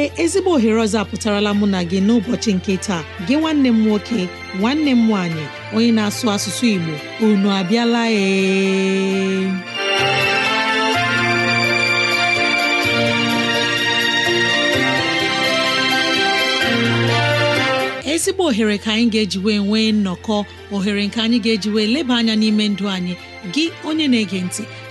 ee ezigbo ohere ọzọ apụtarala mụ na gị n'ụbọchị nke taa gị nwanne m nwoke nwanne m nwaanyị onye na-asụ asụsụ Igbo unu abịala ee ezigbo ohere ka anyị ga-ejiwe nwee nnọkọ ohere nke anyị ga-ejiwe leba anya n'ime ndụ anyị gị onye na-ege ntị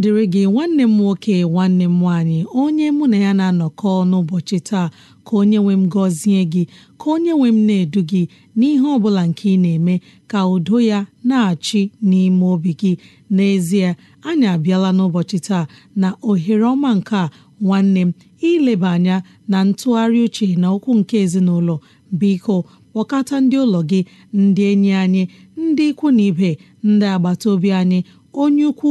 dịrị gị nwanne m nwoke nwanne m nwaanyị onye mụ na ya na-anọkọ n'ụbọchị taa ka onye nwe m gọzie gị ka onye nwe m na-edu gị n'ihe ọ bụla nke ị na-eme ka udo ya na-achị n'ime obi gị n'ezie anyị abịala n'ụbọchị taa na ohere ọma nke a nwanne m ileba anya na ntụgharị uche na okwu nke ezinụlọ biko kpọkọta ndị ụlọ gị ndị enyi anyị ndị ikwu na ibe ndị agbata obi anyị onye ukwu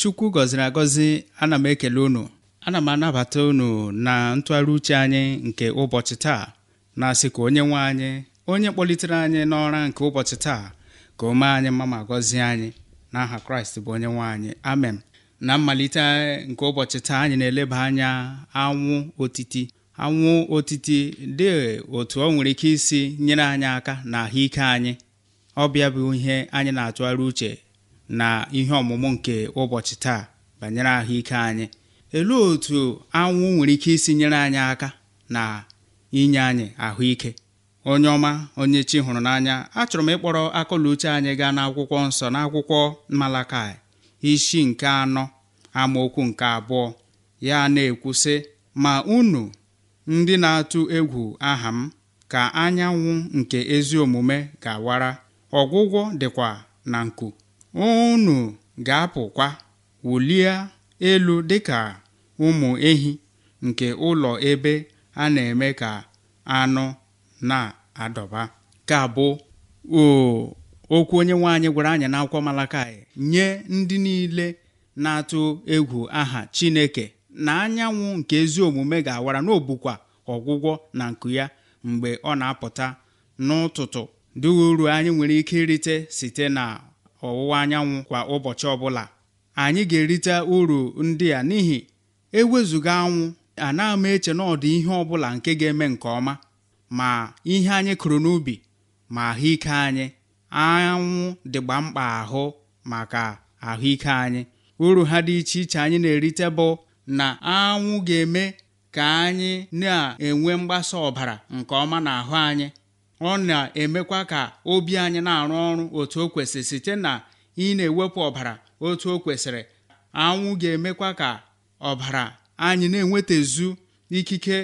chukwu gọziri agọzi ana m ekele unu ana m anabata unu na ntụgharị uche anyị nke ụbọchị taa na-asị ka onye nwe anyị onye kpọlitere anyị n'ọra nke ụbọchị taa ka o mee anyị mma ma gọzie anyị n'aha kraịst bụ onye nwe anyị amen na mmalite nke ụbọchị taa anyị na-eleba anya anwụ otiti anwụ otiti dị otu ọ nwere ike isi nyere anyị aka na ahụike anyị ọ bịa bụ ihe anyị na-atụgharị uche na ihe ọmụmụ nke ụbọchị taa banyere ahụike anyị elee otu anwụ nwere ike isi nyere anyị aka na inye anyị ahụike onye ọma onye chi hụrụ n'anya achọrọ m ịkpọrọ akọla anyị gaa n'akwụkwọ nsọ n'akwụkwọ Malakai isi nke anọ amaokwu nke abụọ ya na-ekwu ma unu ndị na-atụ egwu aha m ka anyanwụ nke ezi omume ga-awara ọgwụgwọ dịkwa na nku unu ga-apụkwa wulie elu dịka ụmụ ehi nke ụlọ ebe a na-eme ka anụ na-adọba ka bụ okwu onye anyị gwara anyị n'akwụkwọ malakai nye ndị niile na-atụ egwu aha Chineke na anyanwụ nke ezi omume ga-awara n'obukwa ọgwụgwọ na nku ya mgbe ọ na-apụta n'ụtụtụ dị uru anyị nwere ike irite site na ọwụwa anyanwụ kwa ụbọchị ọbụla anyị ga-erite uru ndị a n'ihi ewezuga anwụ ana ama eche na ọdị ihe ọbụla nke ga-eme nke ọma ma ihe anyị kụrụ n'ubi ma ahụike anyị anwụ dịgba mkpa ahụ maka ahụike anyị uru ha dị iche iche anyị na-erite bụ na anwụ ga-eme ka anyị na-enwe mgbasa ọbara nke ọma n'ahụ anyị ọ na-emekwa ka obi anyị na-arụ ọrụ otu o kwesịrị site na ị na-ewepụ ọbara otu o kwesịrị anwụ ga-emekwa ka ọbara anyị na-enwetazu ikike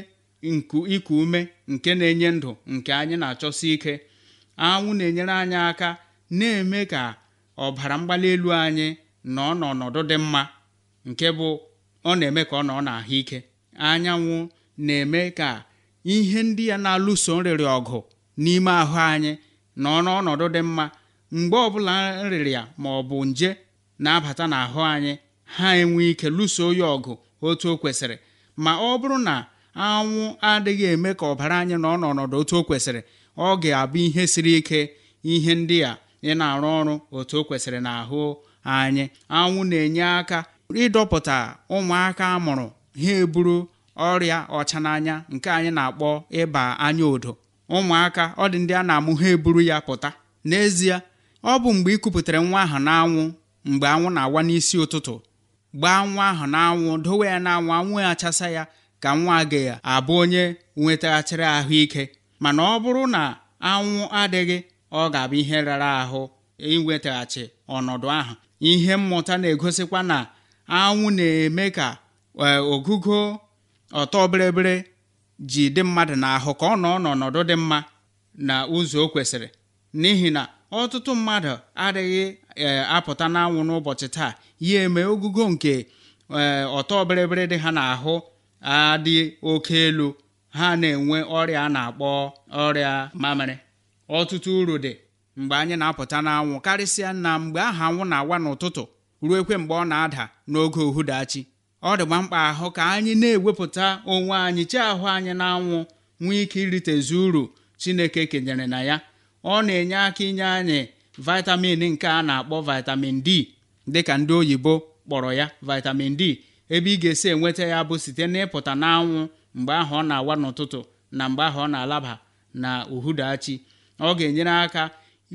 ịkụ iku ume nke na-enye ndụ nke anyị na-achọsi ike anwụ na-enyere anyị aka na-eme ka ọbara mgbali elu anyị nọ n'ọnọdụ dị mma nke bụ ọ na-eme ka ọ nọ n'ahụ ike anyanwụ na-eme ka ihe ndị ya na-alụso nrịrị ọgụ n'ime ahụ anyị na ọnọdụ dị mma mgbe ọbụla nrịrịa ma ọ bụ nje na-abata n'ahụ anyị ha enwe ike lụso ya ọgụ otu o kwesịrị ma ọ bụrụ na anwụ adịghị eme ka ọbara anyị nọ n'ọnọdụ otu o kwesịrị ọ ga-abụ ihe siri ike ihe ndị a ị na-arụ ọrụ otu o kwesịrị ahụ anyị anwụ na-enye aka ịdọpụta ụmụaka amụrụ ha eburu ọrịa ọcha n'anya nke anyị na-akpọ ịba anya odo ụmụaka ọ dị ndị a na-amụ ha eburu ya pụta n'ezie ọ bụ mgbe ị kupụtara nwa ahụ n'anwụ mgbe anwụ na-awa n'isi ụtụtụ gbaa nwa ahụ n'anwụ dowe ya n'anwụ anwụ achasa ya ka nwa gị abụ onye nwetaghachiri ahụike mana ọ bụrụ na anwụ adịghị ọ ga-abụ ihe rara ahụ inwetaghachi ọnọdụ ahụ ihe mmụta na-egosikwa na anwụ na-eme ka eh, ogugo ọtọ bịrịbịrị ji dị mmadụ n'ahụ ka ọ nọ n'ọnọdụ dị mma na ụzọ o kwesịrị n'ihi na ọtụtụ mmadụ adịghị e, apụta n'anwụ n'ụbọchị taa ya eme ogugo nke e, ọtọ bịrịbịrị dị ha n'ahụ adị oke elu ha na-enwe ọrịa a na-akpọ ọrịa mamịrị ọtụtụ uru dị mgbe anyị na-apụta n'anwụ karịsịa na mgbe aha anwụ na-awa n'ụtụtụ ruo ekwe mgbe ọ na-ada n'oge uhudachi ọ dịgba mkpa ahụ ka anyị na-ewepụta onwe anyị chi ahụ anyị na-anwụ nwee ike iritezu uru chineke kenyere na ya ọ na-enye aka inye anyị vitamin nke a na-akpọ vitamin d dịka ndị oyibo kpọrọ ya vitamin d ebe ị ga-esi enweta ya bụ site n'ịpụta n'anwụ mgbe ahụ ọ na-awa n'ụtụtụ na mgbe ahụ ọ na-alaba na uhudachi ọ ga-enyere aka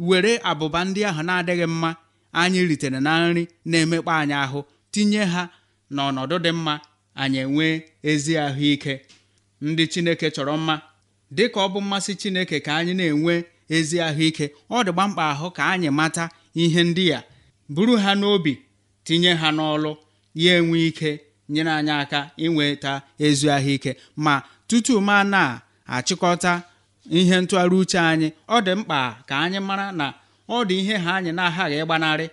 were abụba ndị ahụ na-adịghị mma anyị ritere na nri na-emekpa anyị ahụ tinye ha na ọnọdụ dị mma anyị enwee ezi ahụike ndị chineke chọrọ mma dị ka ọ bụ mmasị chineke ka anyị na-enwe ezi ahụike ọ dị gbamkpa ahụ ka anyị mata ihe ndị ya buru ha n'obi tinye ha n'ọlụ ya enwe ike nyere anyị aka inweta ezi ahụike ma tutu ma na-achịkọta ihe ntụgharị uche anyị ọ dị mkpa ka anyị mara na ọ dị ihe ha anyị na-aghaghị ịgbanarị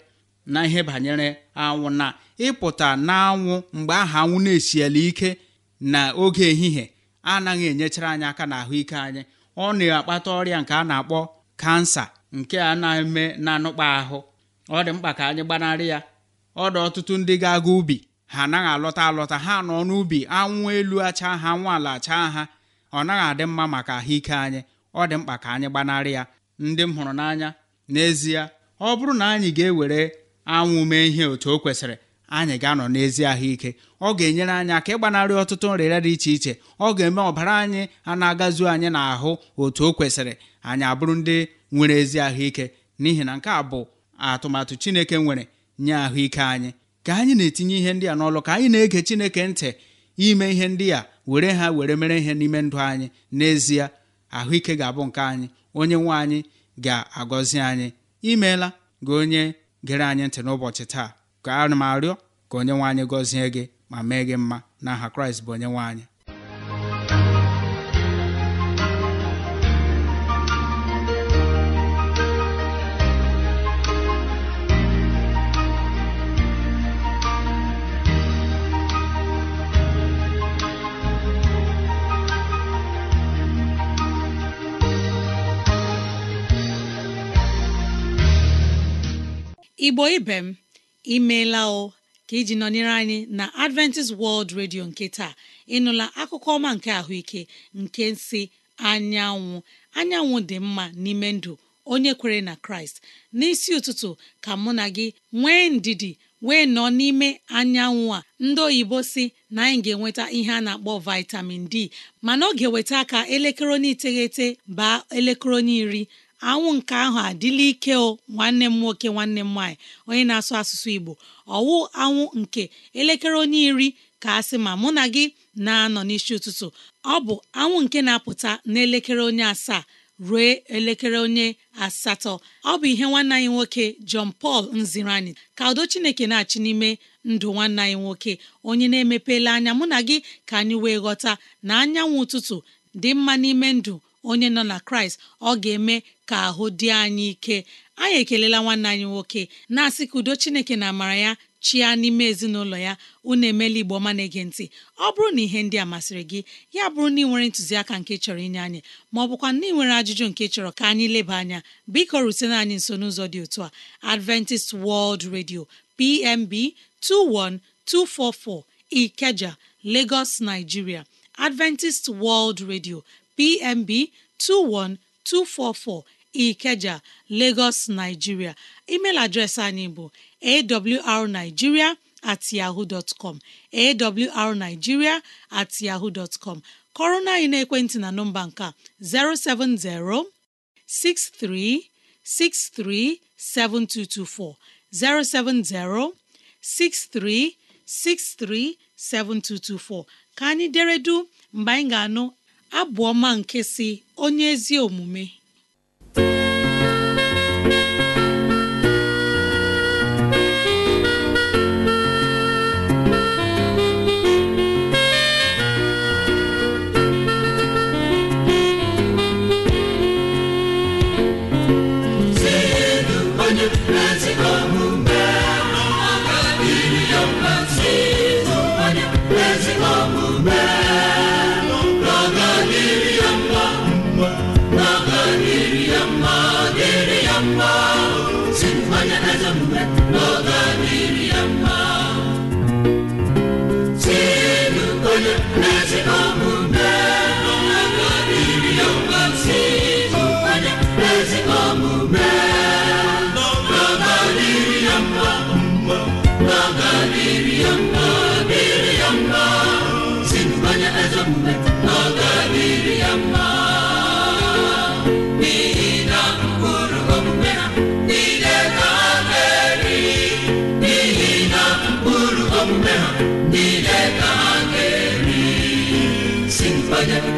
na ihe banyere anwụ na ịpụta n'anwụ mgbe aha anwụ na-esiela ike na oge ehihie anaghị enyechara anyị aka na ahụike anyị ọ na-akpata ọrịa nke a na-akpọ kansa nke a na-eme na anụkpa ahụ ọ dị mkpa ka anyị gbanarị ya ọ dị ọtụtụ ndị ga-aga ubi ha anaghị alọta alọta ha nọ n'ubi anwụ elu acha ha anwụ ala acha ha ọ naghị adị mma maka ahụike anyị ọ dị mkpa ka anyị gbanarị ya ndị m hụrụ n'anya n'ezie ọ bụrụ na anyị ga-ewere anwụ mee ihe otu o kwesịrị anyị ga-anọ n'ezi ahụike ọ ga-enyere anyị aka ịgbanarị ọtụtụ nrịrịa dị iche iche ọ ga-eme ọbara anyị a na-agazu anyị n'ahụ otu o kwesịrị anyị abụrụ ndị nwere ezi ahụike n'ihi na nke a bụ atụmatụ Chineke nwere nye ahụike anyị ka anyị na-etinye ihe ndị a n'ọlụ ka anyị na-ege Chineke ntị ime ihe ndị a were ha were mere ihe n'ime ndụ anyị n'ezie ahụike ga-abụ nke anyị onye nwe anyị ga-agọzi anyị imeela gị onye gere anyị ntị n'ụbọchị taa ka a m arịọ ka onye nwe anyị gọzie gị ma mee gị mma n'aha kraịst bụ onye nwe igbo ibe m imeela o ka iji nọnyere anyị na Adventist World Radio nke taa ịnụla akụkọ ọma nke ahụike nke si anyanwụ anyanwụ dị mma n'ime ndụ onye kwere na Kraịst n'isi ụtụtụ ka mụ na gị nwee ndidi wee nọ n'ime anyanwụ a ndị oyibo si na anyị ga-enweta ihe a na-akpọ vitamin D mana ọ ga-eweta aka elekere onye iteghete baa elekere onye iri anwụ nke ahụ adịla ike o nwanne m nwoke nwanne m nwaanyị onye na-asụ asụsụ Igbo ọwụ anwụ nke elekere onye iri ka a sị ma mụ na gị na-anọ n'isi ụtụtụ ọ bụ anwụ nke na-apụta n'elekere onye asaa ruo elekere onye asatọ ọ bụ ihe nwanne anyị nwoke John Paul nziri anyị ka udo Chineke na-achị n'ime ndụ nwanne anyị nwoke onye na-emepela anya mụ na gị ka anyị wee ghọta na anyanwụ ụtụtụ dị mma n'ime ndụ onye nọ na Kraịst ọ ga-eme ka ahụ dị anyị ike anyị ekelela nwanne anyị nwoke na-asị ka udo chineke na amara ya chia n'ime ezinụlọ ya unu emela igbo ọma na-ege ntị ọ bụrụ na ihe ndị a masịrị gị ya bụrụ na ị nwere ntụziaka nke chọrọ inye anyị ma ọ bụkwa na ị nwere ajụjụ nke chọrọ ka anyị leba anya biko rutena anyị nso n'ụzọ dị otu a Adventist World Radio PMB 21244 Ikeja Lagos Nigeria Adventist World Radio PMB 21244 Ikeja Lagos Nigeria email adreesị anyị bụ awrnigeria at yahoo dot com awrnigeria at yahoo dot com kọrọ na anyị n'ekwentị na nọmba nka, 070 6363 7224 070 6363 7224 ka anyị deredu mgbe anyị ga-anụ Abụọma ọma nke si onye ezi omume mmanya naza diụọlụ aụ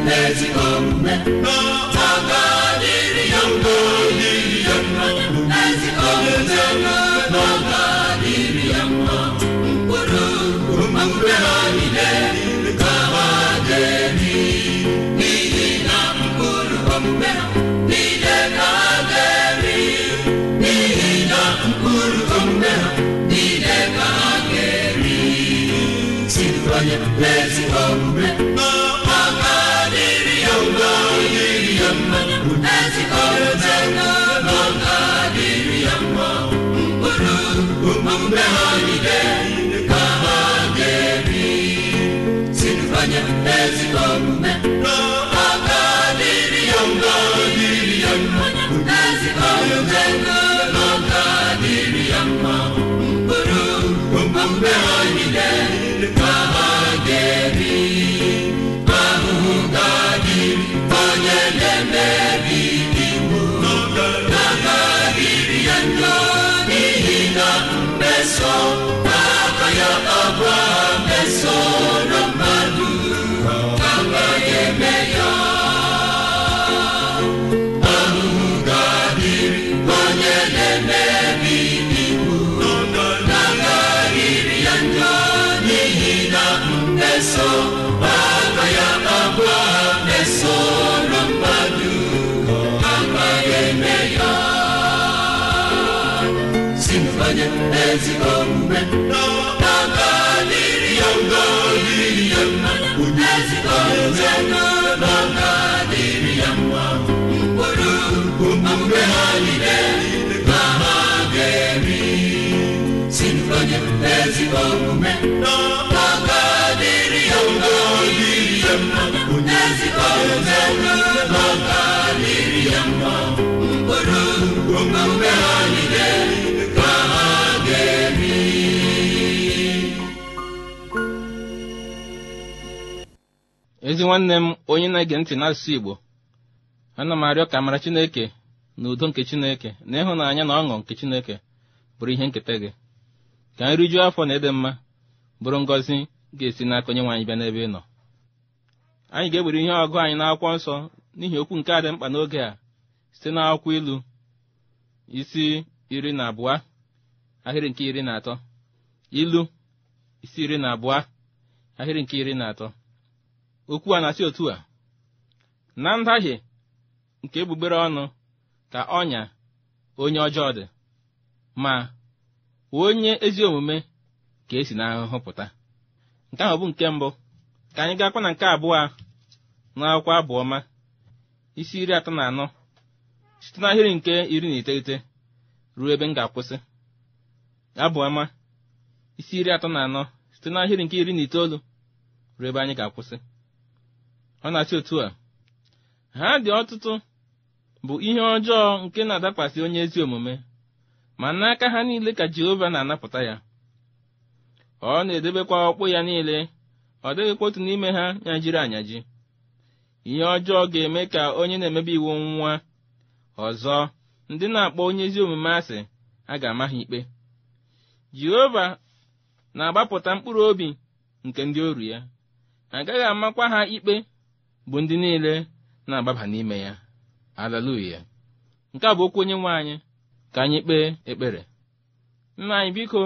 nne ezi omume Shalom ezi nwanne m onye na-ege ntị n'asụsụ igbo ana m arịọ ka amara chineke na udo nke chineke na ịhụnanya na ọṅụ nke chineke bụrụ ihe nketa gị ka nrijuo afọ na ịdị mma bụrụ ngọzi ga-esi n'aka onyenwe anyị bịa n'ebe ị nọ anyị ga egbere ihe ọgụ anyị n'akwụkwọ nsọ n'ihi okwu nke a dị mkpa n'oge a site n'akwụkwọ ilu isi iri na abụọ ahịrị nke iri na atọ ilu isi iri na abụọ ahịrị nke iri na atọ okwu a na-asị otu a na ndahie nke egbugbere ọnụ ka ọnya onye ọjọọ dị ma onye ezi omume ka esi n'ahụhụ pụta nke ahụ bụ nke mbụ ka anyị gaakwa na nke abụọ n'akwụkwọ abụọma. isi iri atọ na anọ site n'ahịrị nke iri na iteghete ruo ebe m ga-akwụsị abụọma. isi iri atọ na anọ site n'ahịrị nke iri na itoolu ruo ebe anyị ga-akwụsị ọ na-achị otu a ha dị ọtụtụ bụ ihe ọjọọ nke na-adakwasị onye ezi omume ma n'aka ha niile ka Jehova na-anapụta ya ọ na-edebekwa ọkpụ ya niile ọ dịghịkwa otu n'ime ha nyajiri anyaji ihe ọjọọ ga-eme ka onye na-emebe iwu nwa ọzọ ndị na-akpọ onye ezi omume asị a ga-ama ha ikpe Jehova na-agbapụta mkpụrụ obi nke ndị oru ya agaghị amakwa ha ikpe bụ ndị niile na-agbaba n'ime ya Haleluya nke a bụ okwu onye nwe anyị ka anyị kpee ekpere nna anyị biko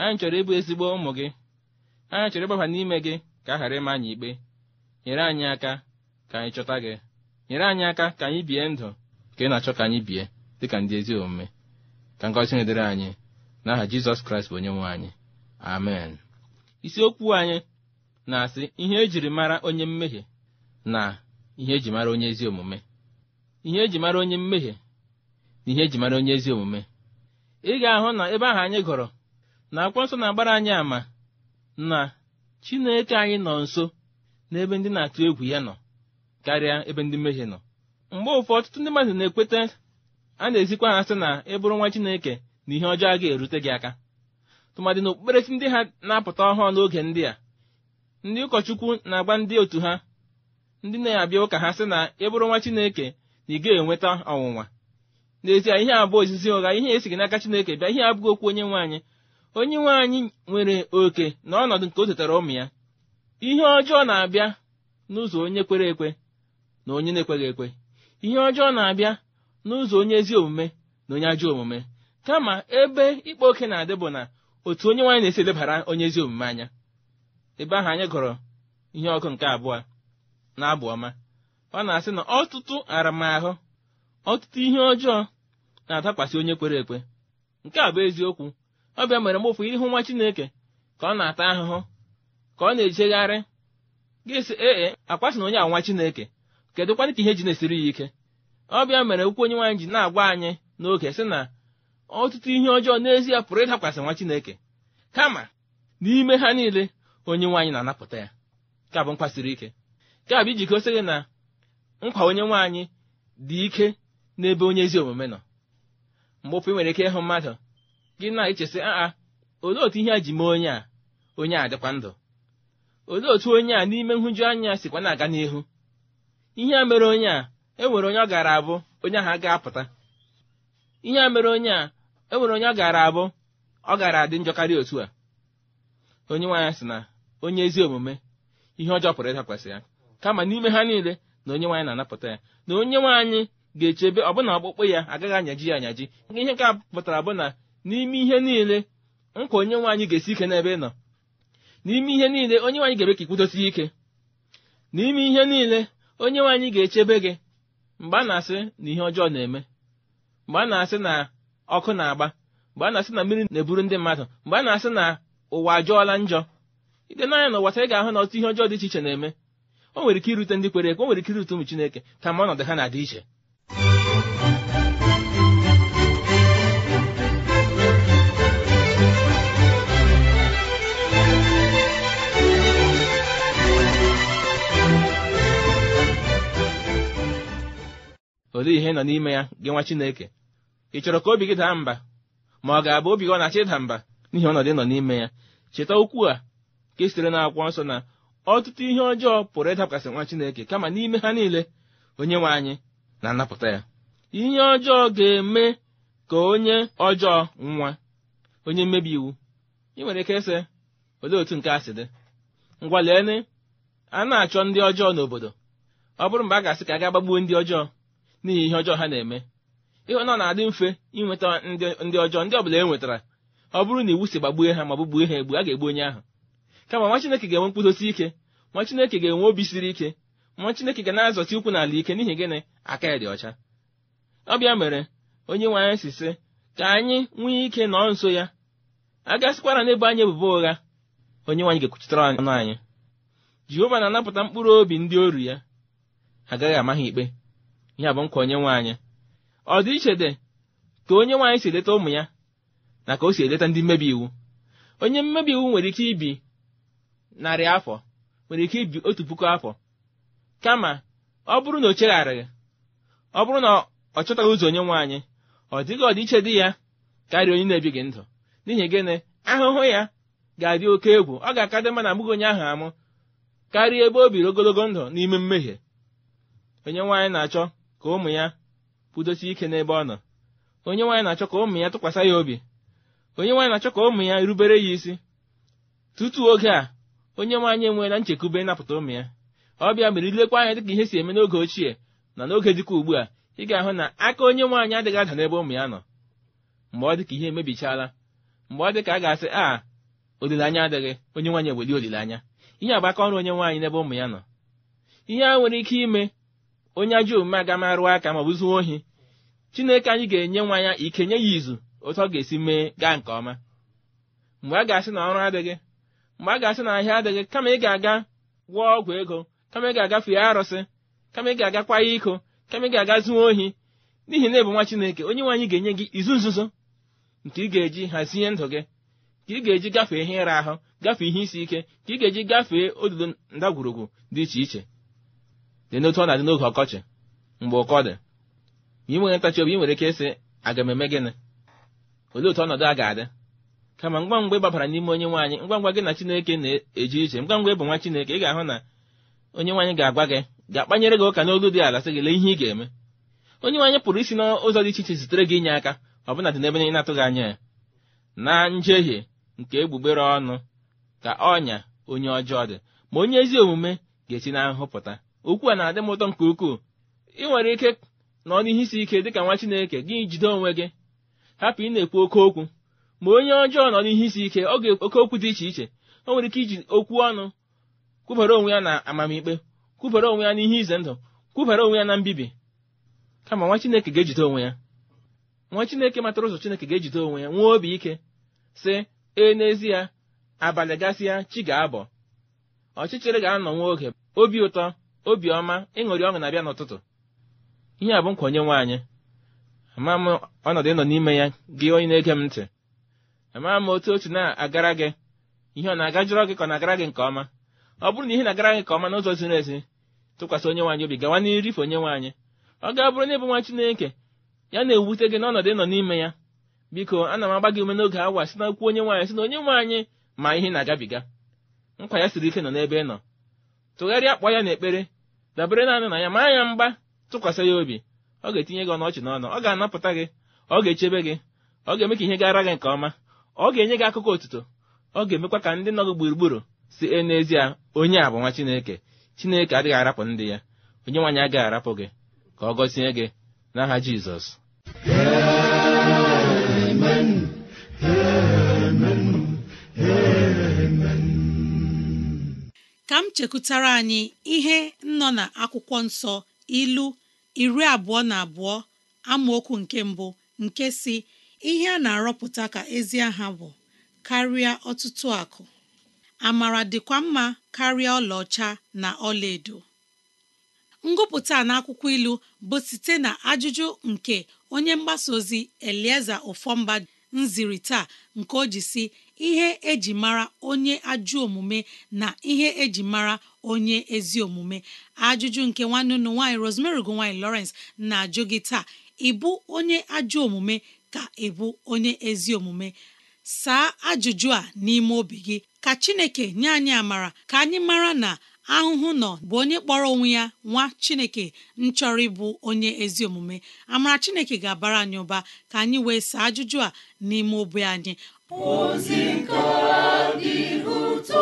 anyị chọrọ ịbụ ezigbo ụmụ gị anyị chọrọ ịgbaba n'ime gị ka a ghara ịma anyị ikpe nyere anyị aka ka anyị chọta gị nyere anyị aka ka anyị bie ndụ ka ị na-achọ ka anyị bie dị ka ndị ezi omume ka ngọzi na-edere anyị n'aha Jizọs Kraịst bụ onye nwe anyị amen isiokwu anyị na-asị ihe ejiri mara onye mmehie na ihe eji mara onye ezi omume ihe eji mara onye mmehie n'ihe eji mara onye ezi omume ị ga-ahụ na ebe ahụ anyị gụrụ na akwụkwọ nsọ na-agbara anyị ama, na chineke anyị nọ nso n'ebe ndị na-atụ egwu ya nọ karịa ebe ndị mmehie nọ mgbe ụfọdụ ọtụtụ ndị mmadụ na-ekweta a na-ezikwa ha sị na ịbụrụ nwa chineke na ihe ọjọọ ga erute gị aka tụmadị na okpukperechi ndị ha na-apụta ọhụụ n'oge ndị a ndị ụkọchukwu na-agba ndị otu ha ndị na-abịa ụka ha sị na ịbụrụ nwa chineke na ị gaghị enweta ọnwụnwa n'ezie ihe abụọ ozizi ụgha ihe e gị n'aka chineke bịa ihe abụghị okwu onye nwaanyị onye nwaanyị nwere oke na ọnọdụ nke o zụtara ụmụ ya ihe ọjọọ na-abịa n'ụzọ onye kwere ekwe na onye na-ekweghị ekwe ihe ọjọọ na-abịa n'ụzọ onye ezi omume na onye ajọ omume kama ebe ịkpa oke na-adị bụ na otu onye nwaanyị na-esi elebara onye ezi omume anya ebe ahụ anyị gụrụ ihe ọkụ nke abụọ na abụ ọma ọ na-asị na ọtụtụ aramahụ ọtụtụ ihe ọjọọ na-adakwasị onye kwere ekwe nke a bụ eziokwu ọbịa mere mgbe ụfụ ịhụ nwa Chineke ka ọ na-ata ahụhụ ka ọ na-ejegharị ga ee e, akwasị na onye a nwa Chineke kedụkwanị ka ihe ji na-esiri ya ike ọbịa mere okwu onye nwaanyị ji na-agwa anyị n'oge sị na ọtụtụ ihe ọjọọ n'ezie pụrụ ịdakwasị nwa Chineke kama n'ime ha niile onye nwaanyị na-anapụta ya ka bụ mkpasiri ike ka bụ iji sị gị na nkwa onye nwaanyị dị ike n'ebe onye ezi omume nọ mgbe ofe nwere ike ịhụ mmadụ gị na-echesị aa olee otu ihe a ji mee onye a onye a dịkwa ndụ olee otu onye a n'ime nhụju anya sikwa na-aga n'ihu ihe a mere onye a enwere onye ọ gara abụ onye ahụ ga-apụta ihe a mere onye a enwere onye ọ gara abụ ọ gara adị njọkarị otu a onye nwaanyị sị na onye ezi omume ihe ọjọọ pụrụ ịdakwasị ya kama n'ime ha niile na onye nwaanyị na-anapụta ya na onye nwaanyị ga-echebe ọbụna ọkpụkpụ ya agaghị anyaji ya anyaji ihe nke a pụtara bụ na n'ime ihe niile nkwa onye nwaanyị ga-esi ike n'ebe ị nọ n'ime ihe niile onye nwaanyị ga-ebe ka ikwudosi ike n'ime ihe niile onye nwaanyị ga-echebe gị mgbe a na-asị na ihe ọjọọ na-eme mgbe a na-asị na ọkụ na-agba mgbe a na-asị na mmiri na-eburu ndị mmadụ mgbe a na-asị na ụwa ajọọla njọ ide n'anya na ụwata taa ị ga-ahụ na ọtụtụ ihe ọjọọ dị iche iche na-eme o nwere ike irute ndị kwere ekwe o nwere ike irute ụmụ Chineke kama ọnọdụ ha na-adị iche olee ihe nọ n'ime ya gị nwa chineke ị chọrọ ka obi gị daa mba ma ọ ga-abụ obi gị ọ na-achọ ịda mba n'ihi ọnọdụ nọ n'ime ya cheta okwu a ka e sitere na akwụkwọ nsọ na ọtụtụ ihe ọjọọ pụrụ ịdapụgasị nwa chineke kama n'ime ha niile onye nwe anyị na-anapụta ya ihe ọjọọ ga-eme ka onye ọjọọ nwa onye mmebi iwu ị nwere ike ịsị olee otu nke a si dị ngwa lee a na-achọ ndị ọjọọ n'obodo ọ bụrụ mgbe a ga-asị ka a ga-agbagbuo ndị ọjọọ n'ihi ihe ọjọọ ha na-eme ịhụ na na-adị mfe ịnweta ndị ọjọọ ndị ọbụla e nwetara ọ bụrụ na iwu si gbagbue ha ma gbugbuo ha egbu a ga-egbu onye ahụ kama nwa Chineke ga-enwe mkpụdosi ike nwa Chineke ga-enwe obi siri ike nwa Chineke ga na azọta ukwu n'ala ike n'ihi gịnị aka ya dị ọcha ọbịa mere onye nwe anyị si sị ka anyị nwee ike nọọ nso ya a gasịkwara n'ebe anyị ebubo ụgha onye nwanyị ga-ekwuchitere ọnụ anyị jehova na-anapụta mkpụrụ obi ndị oru ya agaghị ama ha ikpe ya bụ nkwa onye anyị ọ dị iche dị ka onye nwaanyị si eleta ụmụ ya na ka o si eleta ndị mmebi iwu onye mmebi iwu nwere ike ibi narị afọ nwere ike ibi otu puku afọ kama ọ bụrụ na o chegharịghị ọ bụrụ na ọ chọtaghị ụzọ onye nwaanyị anyị ọ dịghị ọdịiche dị ya karịa onye na-ebighị ndụ n'ihi gịnị ahụhụ ya ga-adị oke egwu ọ ga-akadị mma na abụghị onye ahụ amụ karịa ebe o biri ogologo ndụ n'ime mmehie onye nwaanyị na-achọ ka ụmụ ya kwudosie ike n'ebe ọ nọ onye nwaanyị na-achọ ka ụmụ ya tụkwasị ya obi onye nwaanyị na-achọ ka ụmụ ya rubere ya isi tutu oge a onye nwaanyị enweela nchekwube ịnapụta ụmụ ya ọ bịa mere ilekwa anya dịka ihe si eme n'oge ochie na n'oge dịka ugbu a ị ga-ahụ na aka onye nwaanyị adịghị ada n'ebe ụmụ ya nọ mgbe ọ dịka ihe emebichala mgbe ọ dịka a ga-asị a olileanya adịghị onye nwaanyị eweli olileanya ihe agba aka ọrụ onye nwaanyị n'ebe ụmụ ya nọ ihe a nwere ike ime onye ajọ omume agamarụ aka ma zuo ohi chineke anyị ga-enye nwa ya ike nye ya izu otu ọ ga-esi mee gaa nke ọma mgbe a ga-asị na ọrụ adịghị mgbe a ga-asị na ahịa adịghị kama ị ga-aga gwọọ ọgwụ ego kama ị ga-aga fee arụsị kama ị ga-agakwa ya iko kama ị ga-aga zuo ohi n'ihi na ebu nwa chineke onye nwe anyị ga-enye gị izu nzuzo nke ị ga-eji hazie ndụ gị ka ị ga-eji gafee ihe ịra ahụ gafee ihe isi ike ka ị ga-eji gafee odudo ndagwurugwu dị iche iche dị n'otu ọ na-adị n'oge ọkọchị mgbe ụkọ dị ma ị nweghị ntachi obi ị nwere ike ịsị aga m eme gịnị olee otu ọnọdụ a ga-adị kama ngwa ngwa ịgbabara n'ime onye nwaanyị ngwa ngwa gị na Chineke na eji iche ngwa ngwa ịbụ nwa Chineke ị ga-ahụ na onye nwaanyị ga-agwa gị ga-akpanyere gị ụka n'olu dị ala sị gị lee ihe ị ga-eme onye nwaanyị pụrụ isi n'ụzọ dị iche iche zitere gị inye aka ọbụna dị n'ebe ị na-atụghị anya ya na njehie nke egbugbere ọnụ ka ọnya onye ọjọọ dị ma onye ezi omume ga-esi na pụta okwu a na-adị m ụtọ nke ukwuu ị nwere ike nọ n'ihe isi ike dịka nwa Chineke gị jide onwe gị hapụ ị na-ekwu oke okwu ma onye ọjọọ nọ n'ihe isi ike ọ ga-ekwu oke okwu dị iche iche o nwere ike iji okwu ọnụ kwubere onwe ya na amamikpe kwubere onwe ya n'ihe ize ndụ kwubere onwe ya na mbibi kama nwa Chineke ga-ejide onwe ya nwa Chineke matara ụzọ Chineke ga-ejide onwe ya nwee obi ike sị ee n'ezie abalị gasịa chi ga-abọ ọchịchịrị ga-anọ nwa oge obi ụtọ obiọma ịṅụrị ọṅụ na-abịa n'ụtụtụ ihe a bụ onye nwaanyị ama m ọnọdụ ịnọ n'ime ya gị onye na-ege m ntị ama m otu otu na-agara gị ihe ọ na-agajụrọ gị ka ọ na-agara gị nke ọma ọ bụrụ na ihe na-agara gị nke ọma n'ụzọ ziri ezi tụkwasị onye nwaanyị obi gawa n'irife onye nwaanyị ọ ga bụrụ na ịbụ nwa Chineke ya na-ewute gị n'ọnọdụ ịnọ n'ime ya biko ana m agba gị ume n'oge awa si na okwu onye nwaanyị si na onye nwaanyị ma ihe na-agabiga nkwa ya siri ike nọ n'ebe ị nọ tụgharịa akpọ ya n'ekpere dabere naanị na ya maa ya mgba tụkwasị ya obi ọ ga-etinye gị ọnọchị n'ọnụ ọ ga-anapụta gị ọ ga-echebe gị ọ ga-eme ka ihe gara gị nke ọma ọ ga-enye gị akụkọ otuto ọ ga-emekwa ka ndị nọ gị gburugburu si e n'ezie onye a bụ nwa Chineke Chineke adịghị arapụ ndị ya onye nwaanyị agaghị arapụ gị ka ọ gọzie gị n'aha Jizọs ka m chekụtara anyị ihe nọ na akwụkwọ nsọ ilu iri abụọ na abụọ amaokwu nke mbụ nke si ihe a na-arọpụta ka ezi aha bụ karịa ọtụtụ akụ amara dịkwa mma karịa ọlaọcha na ọlaedo ngụpụta n'akwụkwọ ilu bụ site na ajụjụ nke onye mgbasa ozi elieze ofọmba nziri taa nke o ji si ihe eji mara onye ajụ omume na ihe eji mara onye ezi omume ajụjụ nke nwanne unu nwaanyị Rosemary gonwanyị Lawrence na-ajụ gị taa ịbụ onye ajụ omume ka ịbụ onye ezi omume saa ajụjụ a n'ime obi gị ka Chineke nye anyị amara ka anyị mara na ahụhụ nọ bụ onye kpọrọ onwe ya nwa chineke nchọrọ ịbụ onye ezi omume amara chineke ga-abara anyị ụba ka anyị wee saa ajụjụ a n'ime obi anyị ozi nke dị ụtọ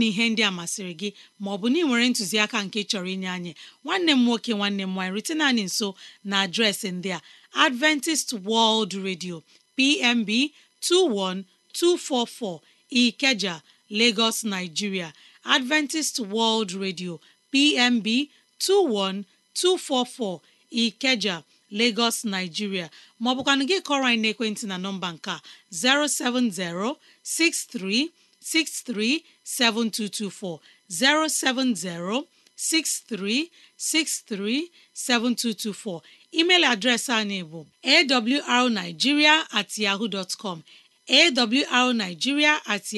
na ihe ndị a masịrị gị ma ọ bụ na ị nwere ntụziaka nke chọrọ inye anyị nwanne m nwoke nwanne m nwaanyị riten anyị nso na adreesị ndị a Adventist World Radio PMB 21244 Ikeja Lagos Nigeria Adventist World Radio PMB 21244 Ikeja Lagos Nigeria ma ọ gị kọrọ anyị n'ekwentị na nọmba nke a 070 6363 7224 070 63637224 email adreesị anyị bụ arigiria at yahoo dot com at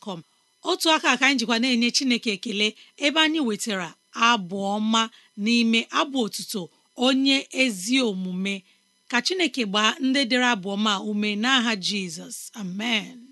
com otu aka ka anyị jikwa na-enye Chineke ekele ebe anyị nwetara abụ ọma n'ime abụ otuto onye ezi omume ka Chineke gbaa ndị dịrị abụ ọma ume n'aha Jizọs amen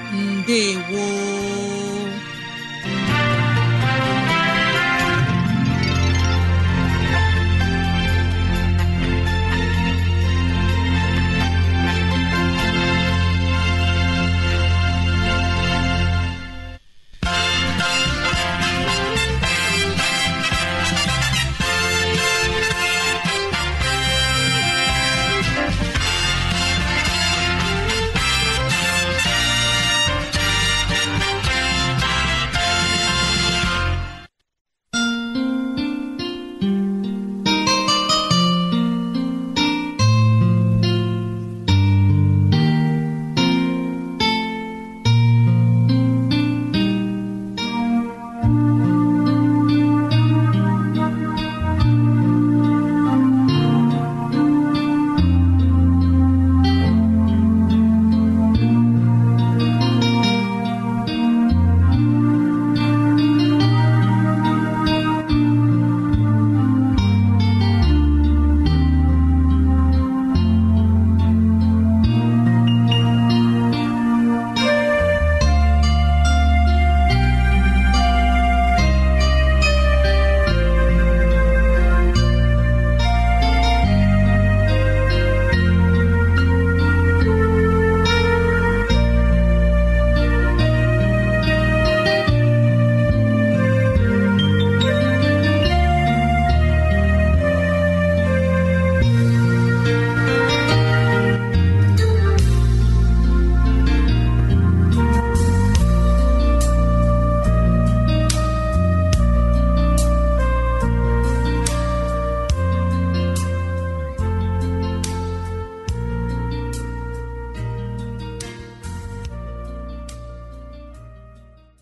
ndewo